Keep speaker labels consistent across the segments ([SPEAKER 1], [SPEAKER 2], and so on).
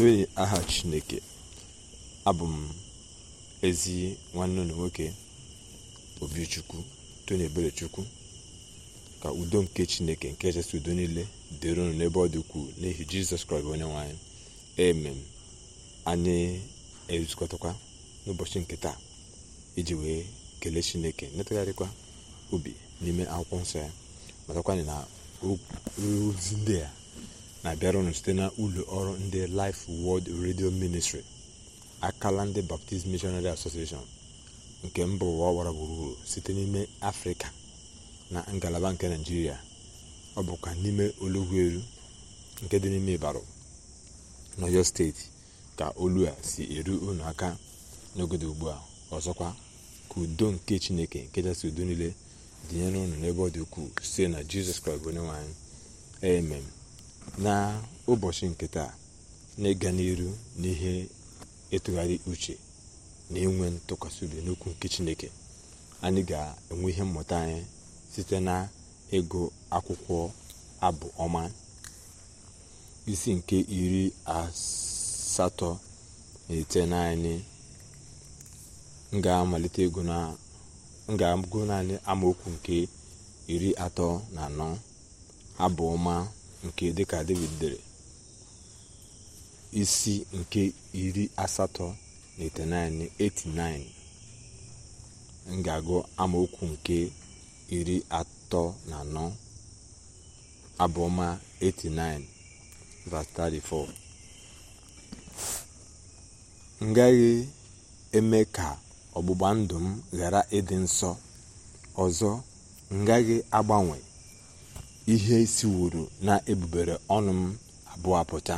[SPEAKER 1] Toyin aha Chineke abụ m ezi nwanne ụlọ nwoke Obichukwu Tony chukwu ka udo nke Chineke nke echesi udo niile dịrị ụnụ n'ebe ọ dị ukwuu n'ihi Jizọs Kraịst onye nwe anyị amen anyị ezukọtakwa n'ụbọchị nke taa iji wee kelee Chineke netagharịkwa obi n'ime akwụkwọ nsọ ya matakwa na ozi ndị a na-abịarụnụ site na ụlọ ọrụ ndị Life World Radio Ministry akala ndị Baptist Missionary Association nke mba ụwa gburugburu site n'ime afrịka na ngalaba nke naijiria ọ bụkwa n'ime olugwuelu nke dị n'ime ịbarụ n'oyo steeti ka olu a si eru unu aka n'ogodo ugbu a ọzọkwa ka udo nke chineke nke kachasị udo niile dịnyere ụnụ n'ebe ọ dị ukwuu site na jizọs kraịst onye nwanyị amen na ụbọchị nke taa na ịga n'iru n'ihe ịtụgharị uche na inwe ntụkwasị obi n'okwu nke chineke anyị ga-enwe ihe mmụta anyị site na ego akwụkwọ abụ ọma isi nke iri asatọ na ite naanị ga ego na agụ naanị amaokwu nke iri atọ na anọ abụ ọma nke dịka david dere isi nke iri asatọ na itenaịnị 89 m ga amaokwu nke iri atọ na anọ abụọma 89 verse 34 m eme ka ọgbụgba ndụ m ghara ịdị nsọ ọzọ m agbanwe ihe siworo na ebubere ọnụ m abụọ apụta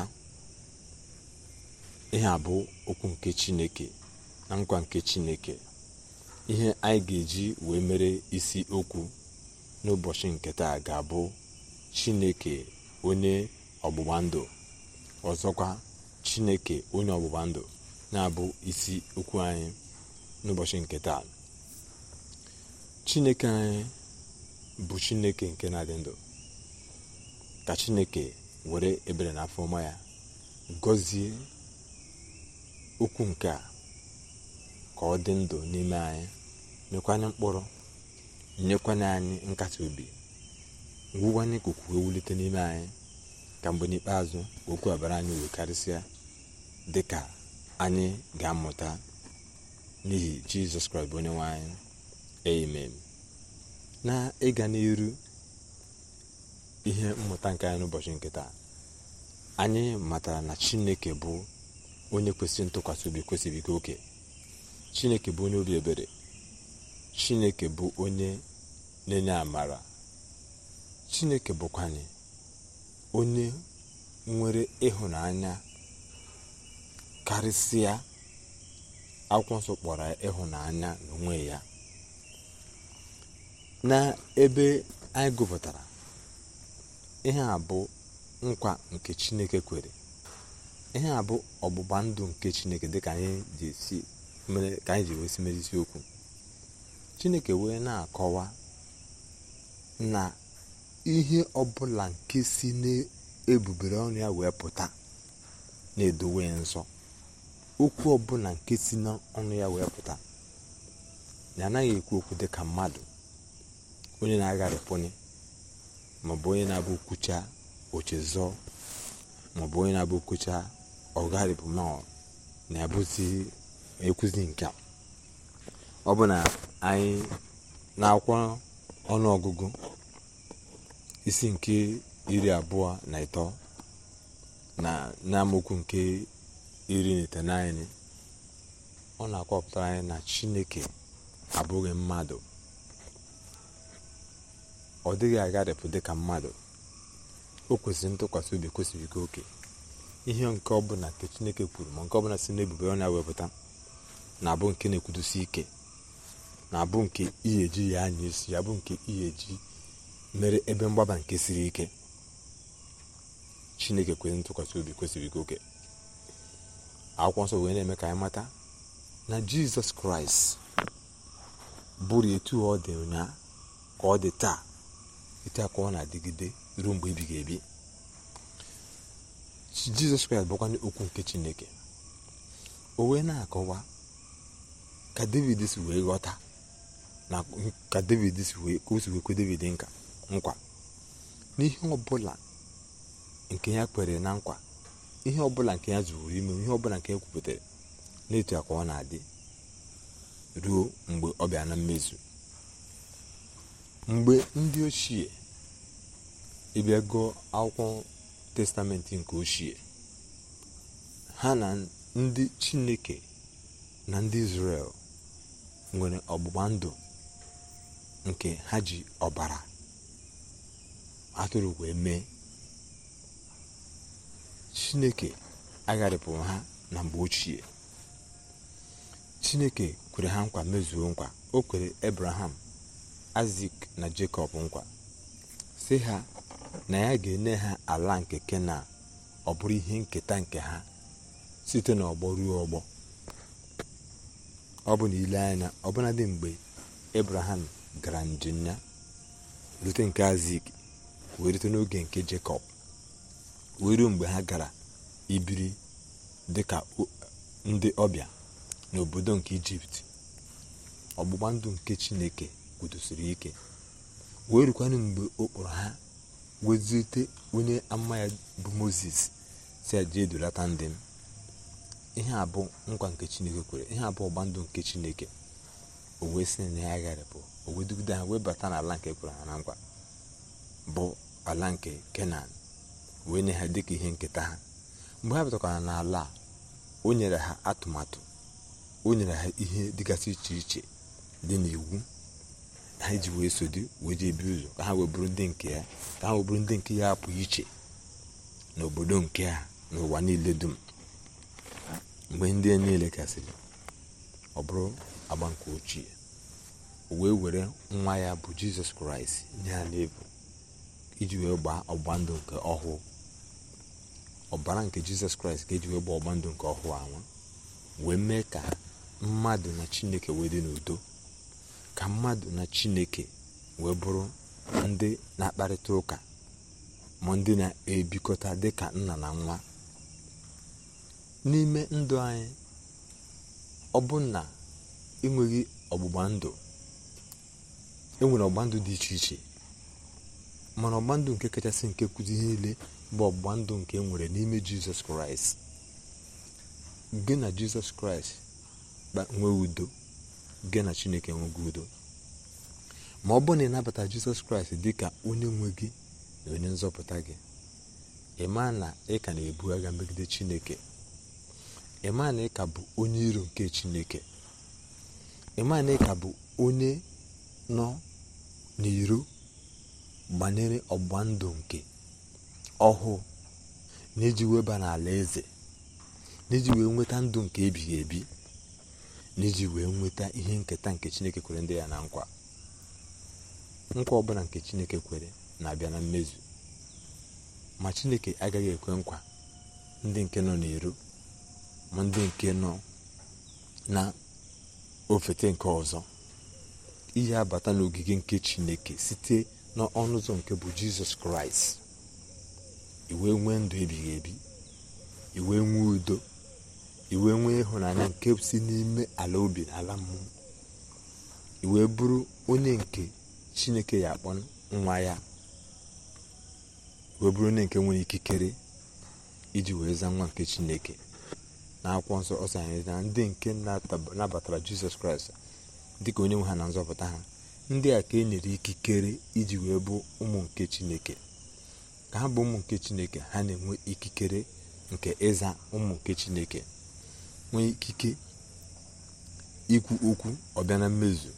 [SPEAKER 1] ihe a bụ okwu nke chineke na nkwa nke chineke ihe anyị ga-eji wee mere isi okwu n'ụbọchị nke taa ga-abụ chineke onye ọgbụgba ndụ ọzọkwa chineke onye ọgbụgba ndụ na-abụ isi okwu anyị n'ụbọchị nke taa chineke anyị bụ chineke nke na-adị ndụ ka chineke were ebere na afọma ya gọzie okwu nke a ka ọ dị ndụ n'ime anyị nyekwanye mkpụrụ nyekwanye anyị nkasi obi ngwụwanye n'ikuku ewulite n'ime anyị ka mgbe n'ikpeazụ okwu abara anyị uwe karịsịa dị ka anyị ga-amụta n'ihi jizọs kraịst bụ onye nwe anyị amen na ịga n'iru ihe mmụta nke anyị n'ụbọchị nke taa anyị matara na chineke bụ onye kwesịrị ntụkwasị obi kwesịrị ike oke chineke bụ onye obi ebere chineke bụ onye na-enye amara chineke anyị onye nwere ịhụnanya karịsịa akwụkwọ nsọ kpọrọ ịhụnanya n'onwe ya na ebe anyị gụpụtara ihe a bụ nkwa nke chineke kwere ihe a bụ ọgbụgba ndụ nke chineke dịka anyị ji wesi mere isiokwu chineke wee na-akọwa na ihe ọbụla nke si n'ebubere ọnụ ya wee pụta na-edowe nsọ okwu ọbụla nke si n'ọnụ ya wee pụta na anaghị ekwu okwu dịka mmadụ onye na-agharịpụnye maọbụ onye na-abụ kwucha ochezọ maọbụ onye na-abụ kwucha ọgarịbụ na-abụzi ekwuzi nke ọ bụ na anyị na akwa e ọnụọgụgụ isi nke iri abụọ na ịtọ na n'amaokwu nke iri n'ite itenaịnị ọ na-akọpụtara anyị na chineke abụghị mmadụ ọ dịghị agharịpụ dị ka mmadụ o kwesịrị ntụkwasị obi kwesịrị ike oke ihe nke ọbụla nke chineke kwuru ma nke ọbụla si n'ebube ọ na-ewepụta na-abụ nke na-ekwudosi ike na-abụ nke ihe ya anya isi ya bụ nke ihe ji mere ebe mgbaba nke siri ike chineke kwesịrị ntụkwasị obi kwesịrị ike oke akwụkwọ nsọ wee na-eme ka anyị mata na jizọs kraịst bụrụ etu ọ dị ụnyaa ka ọ dị taa etu ọ na-adịgide ruo mgbe ebighị ebi jizọs kraịst bụkwanye okwu nke chineke o wee na-akọwa ka david si wee ghọta na ka david si wee ka david nka nkwa n'ihe ọbụla nke ya kwere na nkwa ihe ọbụla nke ya zụrụ ime ihe ọbụla nke ya kwupụtara na-eti ka ọ na-adị ruo mgbe ọ bịa na mmezu mgbe ndị ochie ịbịa akwụkwọ testamentị nke ochie ha na ndị chineke na ndị israel nwere ọgbụgba ndụ nke ha ji ọbara atụrụ wee mee chineke agharịpụrụ ha na mgbe ochie chineke kwere ha nkwa mezuo nkwa o kwere abraham aịzik na jekọb nkwa sị ha na ya ga-enye ha ala nke kenan ọ bụrụ ihe nketa nke ha site n'ọgbọ ruo ọgbọ ọ bụ na ile anya dị mgbe ebraham gara njem ya rute nke aịzik wee rute n'oge nke jekọb wee mgbe ha gara ibiri dị ka ndị ọbịa n'obodo nke ijipt ọgbụgba ndụ nke chineke kwudosiri ike wee rukwanụ mgbe ọ kpọrọ ha wezite onye ama ya bụ moses si ndị m ihe a bụ nkwa nke chineke kwere ihe abụọ ọgba ndụ nke chineke o wee si na ya gharịpụ o wee dugide ha wee bata n'ala nke kwere ha na nkwa bụ ala nke kenan wee nye ha dịka ihe nketa ha mgbe ha batakwara n'ala o nyere ha atụmatụ o nyere ha ihe dịgasị iche iche dị n'iwu ha ji wee so di wee jee ebi ụzọ ka ha wee bụrụ ndị nke ya ka ha wee bụrụ ndị nke ya apụ iche n'obodo nke a n'ụwa niile dum mgbe ndị a niile kasịrị ọ bụrụ agba nke ochie o wee were nwa ya bụ jizọs kraịst nye ha iji wee gbaa ọgba ndụ nke ọhụụ ọbara nke jizọs kraịst ga eji wee gbaa ọgba ndụ nke ọhụụ anwa wee mee ka mmadụ na chineke wee dị n'udo ka mmadụ na chineke wee bụrụ ndị na-akparịta ụka ma ndị na-ebikọta dịka nna na nwa n'ime ndụ anyị ọ bụ na enweghị ọgbụgba ndụ enwere ọgbụgba ndụ dị iche iche mana ọgbụgba ndụ nke kachasị nke kuzi niile bụ ọgbụgba ndụ nke e nwere n'ime jizọs kraịst gị na jizọs kraịst nwee udo gị na chineke enwego udo ma ọ bụrụ na ịnabata jizọs kraịst dị ka onye nwe gị na onye nzọpụta gị ị na ị ka na-ebu agha megide chineke ị na ị ka bụ onye iro nke chineke ị na ị ka bụ onye nọ n'iro banyere ọgba ndụ nke ọhụụ na iji weba n'ala eze na iji wee nweta ndụ nke ebighị ebi n'iji wee nweta ihe nketa nke chineke kwere ndị ya na nkwa nkwa ọbụla nke chineke kwere na-abịa na mmezu ma chineke agaghị ekwe nkwa ndị nke nọ n'iru ma ndị nke nọ na ofete nke ọzọ ihe abata n'ogige nke chineke site n'ọnụ ụzọ nke bụ jizọs kraịst iwe nwee ndụ ebighị ebi iwee nwee udo iwe nwee ịhụnanya nke si n'ime ala obi na ala mmụọ iwe bụrụ onye nke chineke ya akpọ nwa ya wee bụrụ onye nke nwere ikikere iji wee zaa nwa nke chineke na akwụkwọ nsọ ọsọ anyị na ndị nke nabatara jizọs kraịst dịka onye nwe ha na nzọpụta ha ndị a ka e nyere ikikere iji wee bụ ụmụ nke chineke ka ha bụ ụmụ nke chineke ha na-enwe ikikere nke ịza ụmụ nke chineke nwee ikike ikwu okwu ọbịa na mmezu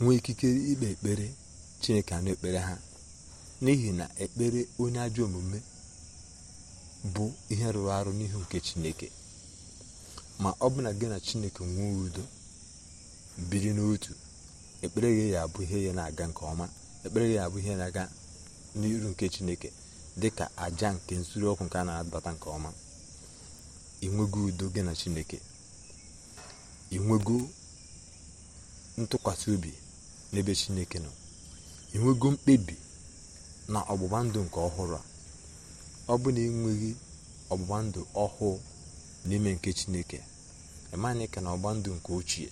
[SPEAKER 1] nwee ikike ikpe ekpere chineke anụ ekpere ha n'ihi na ekpere onye ajọ omume bụ ihe rụrụ arụ n'ihu nke chineke ma ọ bụ na gị na chineke nwee udo biri n'otu ekpere gị ya abụ ihe ya na-aga nke ọma ekpere gị ya abụ ihe na-aga n'iru nke chineke dị ka aja nke nsuru ọkụ nke a na adata nke ọma inwego udo gị na chineke inwego ntụkwasị obi n'ebe chineke nọ inwego mkpebi na ọgbụgba ndụ nke ọhụrụ a ọ bụ na enweghị ọgbụgba ndụ ọhụụ n'ime nke chineke eme ka na ọgba ndụ nke ochie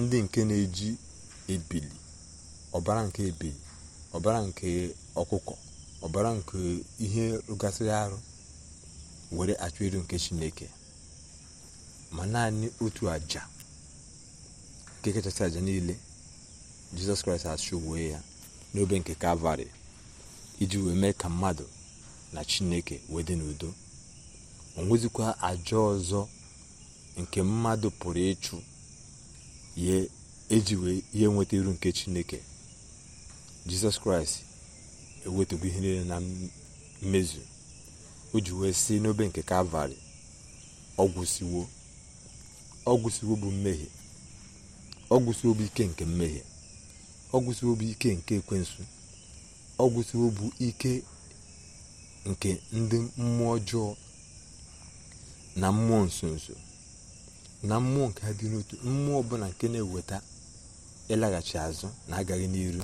[SPEAKER 1] ndị nke na-eji ebili ọbara nke ebili ọbara nke ọkụkọ ọbara nke ihe rụgasịrị arụ were achụ iru nke chineke ma naanị otu aja nke kachasị aja niile jizọs kraịst achụ wee ya n'obe nke kalvarị iji wee mee ka mmadụ na chineke wee dị n'udo o nwezikwa aja ọzọ nke mmadụ pụrụ ịchụ ya eji wee ihe nweta iru nke chineke jizọs kraịst ewetụgo ihe niile na mmezu o ji wee si n'obe nke kalvarị ọgwụsiwo ọgwụsiwo bụ mmehie ọgwụsiwo bụ ike nke mmehie ọgwụsiwo bụ ike nke ekwensu ọgwụsiwo bụ ike nke ndị mmụọ ọjọọ na mmụọ nsonso na mmụọ nke ha dị n'otu mmụọ ọbụla nke na-eweta ịlaghachi azụ na agaghị n'iru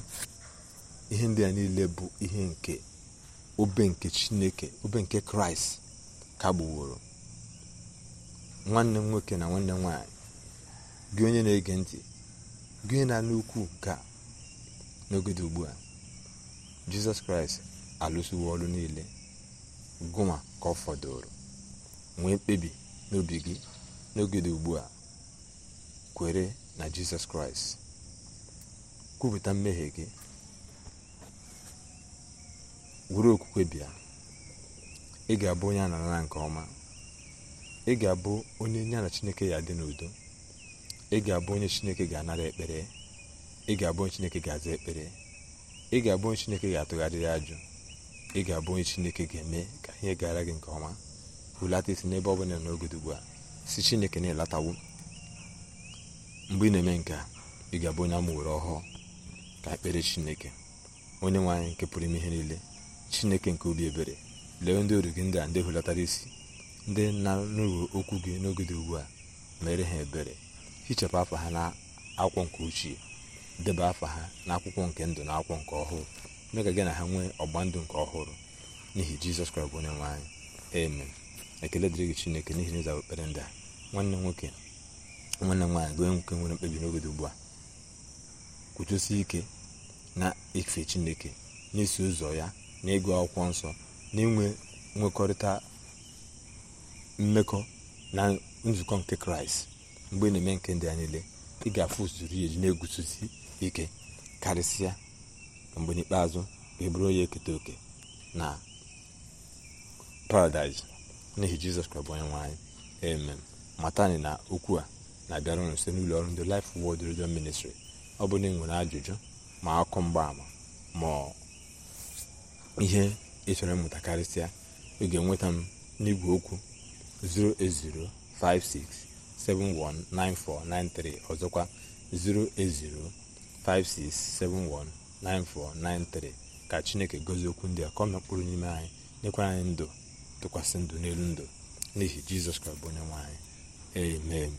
[SPEAKER 1] ihe ndị a niile bụ ihe nke obe nke chineke obe nke kraịst kagbuworo nwanne nwoke na nwanne m nwaanyị gị onye na-ege ntị gị onye na n'ukwu ukwu ka n'ogede ugbu a jizọs kraịst alụsiwo ọrụ niile gụma ka ọ fọdụrụ nwee mkpebi n'obi gị n'ogede ugbu a kwere na jizọs kraịst kwupụta mmehie gị were okwukwe bịa ị ga-abụ onye a na-anara nke ọma ị ga-abụ onye ya na chineke ya dị n'udo ị ga-abụ onye chineke ga-anara ekpere ị ga-abụ onye chineke ga-aza ekpere ị ga-abụ onye chineke ga-atụgharịrị ajụ ị ga-abụ onye chineke ga-eme ka ihe gara gị nke ọma hulata isi n'ebe ọ bụla n'ogodo ugbu a si chineke na-elatawo mgbe ị na-eme nke a ị ga-abụ onye amụwere ọhụụ ka ekpere chineke onye nwe anyị nke pụrụ ime ihe niile chineke nke obi ebere lee ndị oru gị ndị a ndị hulatara isi ndị na-anụghị okwu gị n'oge dị ugbu a mere ha ebere hichapụ afa ha na akwụkwọ nke ochie debe afọ ha na akwụkwọ nke ndụ na akwụkwọ nke ọhụrụ mee ka gị na ha nwee ọgba ndụ nke ọhụrụ n'ihi jizọs kraịst onye nwe anyị ekele dịrị gị chineke n'ihi na ịza ekpere ndị a nwanne nwoke nwanne nwaanyị gị onye nwoke nwere mkpebi n'oge dị ugbu a kwuchesi ike na ife chineke na ụzọ ya na ịgụ akwụkwọ nsọ na inwe nwekọrịta mmekọ na nzukọ nke kraịst mgbe na-eme nke ndị a niile ị ga-afụ usoro ya eji na-eguzosi ike karịsịa mgbe n'ikpeazụ e bụrụ onye eketa oke na paradaịs n'ihi jizọs kraịst bụ onye nwe anyị amen matani na okwu a na-abịara unu site n'ụlọ ọrụ ndị Life Word Radio Ministry ọ bụ na ị nwere ajụjụ ma akụkọ mgbaama ma ihe ịchọrọ mmụta karịsịa ị ga-enweta m n'igwe okwu 08056719493 ọzọkwa 08056719493 ka chineke gozie okwu ndị a ka mkpụrụ n'ime anyị nyekwara anyị ndụ tụkwasị ndụ n'elu ndụ n'ihi jizọs kraịst bụ onye nwe anyị amen